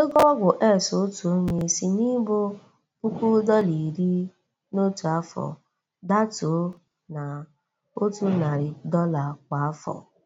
Ego ọgwụ S otu onye si n'ịbụ puku dọla iri n'otu afọ datuo na otu narị dọla kwa afọ.